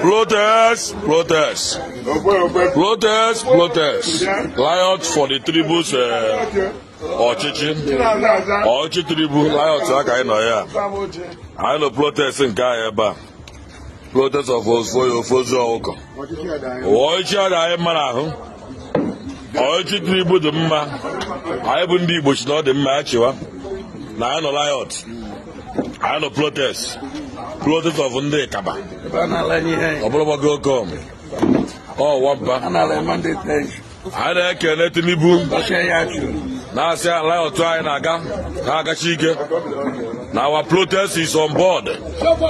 Protest, protest. Protest, protest. Lions for the tribus eh, ọchịchị. ọchịchị tribu Lions aka anyị nọ ya. Anyị nọ protest nke anyị ebe a. Protest of Ofoyo Ofozu Ọkụkọ. Ọchịchị a ga-anyị mara ahụ. Ọchịchị tribu dị mma. Anyị bụ ndị Igbo chi na ọ dị mma ya chịwa. na anyị nọ riot anyị nọ protest protest of ndị kaba ọ go com ọ wampa anyị na-ekene Tinubu na-asị riot anyị na-aga ha agachi ike na our protest is on board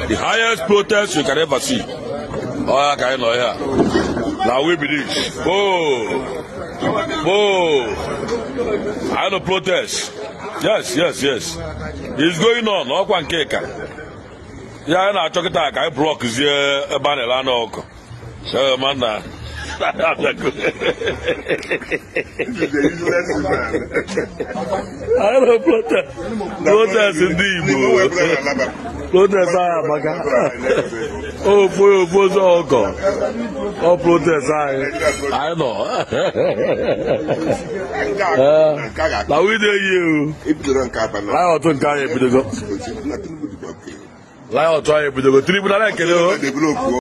the highest protest you can ever see ọ ya ka anyị nọ ya na we believe oh oh I nọ protest yes yes yes it's going on ọkwa nke ka ya na-achọ kịta ka anyị blọkzie ebe a na-ele anụ ọkụ Ara plota. Protas ndị Igbo. Protas anyị amaka. Ofo ofo sọ ọkọ. Ọ protas anyị. Anyị nọ. Na wide yi o. Anyị ọtụ nke anyị ebidogo. Anyị ọtụ anyị ebidogo. Tribunal ekele o.